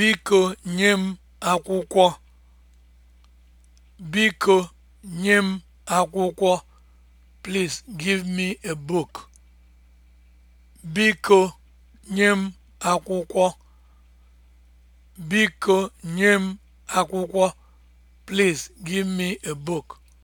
Biko nye m akwụkwọ. Biko nye m akwụkwọ. Please give me a book. Biko nye m akwụkwọ. Biko nye m akwụkwọ. Please give me a book.